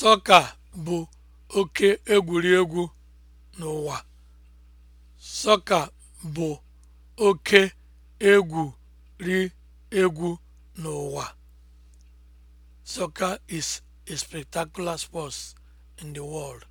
Sọka bụ oke egwuregwu n'ụwa. Sọka bụ oke egwuregwu n'ụwa. Soccer is a spectacular sport in the world.